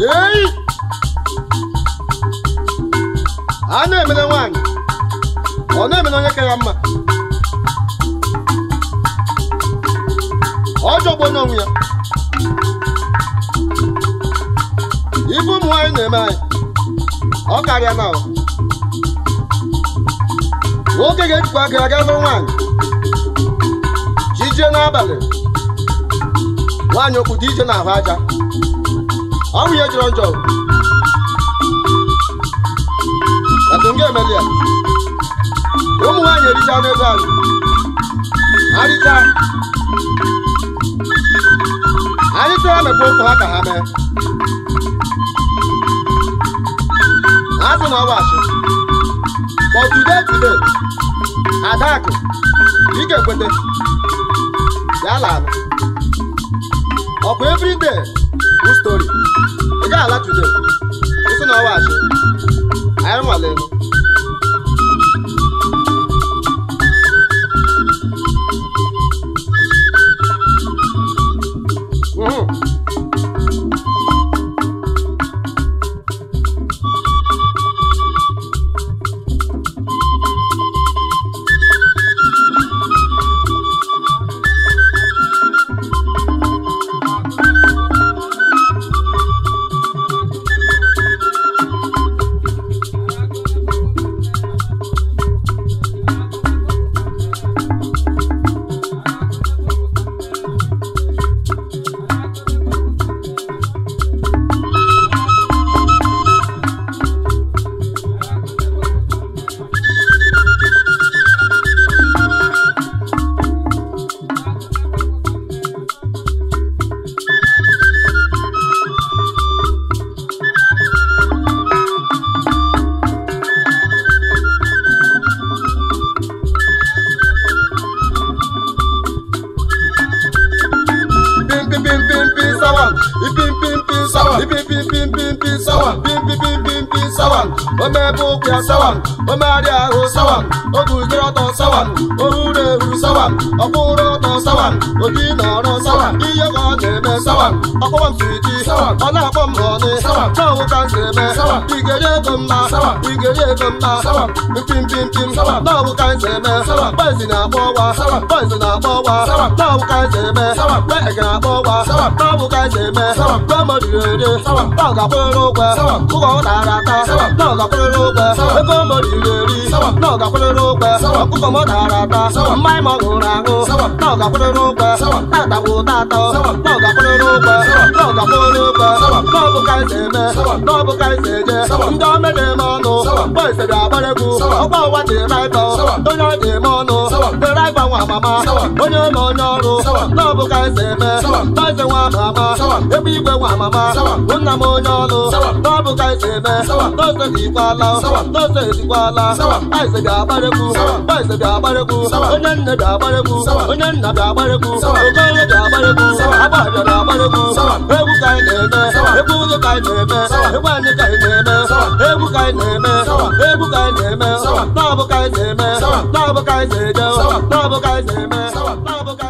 ei a na emele nwaanyị ọ na-emere onye ka ya mma ọ jọgbo n'onwe ya ibu ụmụ nwaanyị na-eme anyị ọ karịa na nwoke ga-ejikwa aka aga lụrụ nwaanyị jije n'abalị nwaanyị okwu dị ije ahụ aja ọnwụ ihe jọrọ njọ atụnga emeli ya ụmụ nwaanyị ericha anụ ego azụ arịcha anyị tụrụ mekwa ụkwụ ha ka ha mee ha sị na ọ wachi but today today adakụ ike kwete ya la ọkwa every day good story ị gaghị ala today ịsị na ọwa achị anyị bim bim bim sawan ipim bim bim sawan bim pim bim bim bim sawan bim pim bim bim bim sawan ọmọ ẹbí òkè sawan ọmọ adé àrò sawan ogùnjẹ ọtọ sawan òhúnẹ òhù sawan ọkùnrin ọtọ sawan òdì nàrọ sawan iyẹkọ nẹmẹ sawan ọkọwọm sùwìtì sawan ọlọ́pàá mọ̀ọ́ni sawan náà wọ́n kà ń sẹ̀mẹ́ sawan ìgẹ̀dẹ̀ kò ń ma sawan. gele gamba mpim pim pim na bụ ka nze eme bezi na-akpọ ọwa bezi na-akpọ ọwa na bụ ka nze eme mgbe ị ga-akpọ ọwa na bụ ka nze eme mgbe mmadụ ere na ọ ga-akwụrịrị ụgwọ ụgwọ ọ tara ata na ọ ga-akwụrịrị ụgwọ ego mmadụ iri na ọ ga-akwụrịrị ụgwọ ọkụkọ m tara ata mmanya m ọ ṅụrụ aṅụ na ọ ga-akwụrịrị ụgwọ tata bụ tatọ na ọ ga-akwụrịrị ụgwọ na ọ ga-akwụrịrị ụgwọ na ọ bụ ka nze eme na ọ bụ ka nze eje ndị ọmụ na-eme ọnụ esere abarịgo ọgba ụwa dị eme ịtọ onye ọ dị eme ọnụ dere ịgbanwe amama onye ụlọ onye ọrụ n'ọbụ ka esi eme taịsị nwa amama ebe igwe nwa amama nna m onye ọnụ n'ọbụ ka esi eme tose dịkwala tose dịkwala taịsị dị abarịgo taịsị dị abarịgo onye nne dị abarịgo onye nna dị abarịgo ogo arụmụka egwu ka anyị na-eme egwu ụzọ ka anyị na-eme egwu anyị ka anyị na-eme egwu ka anyị na-eme egwu ka anyị na-eme na-abụ ka anyị na-eme na-abụ ka anyị na-eje na-abụ ka anyị na-eme na-abụ ka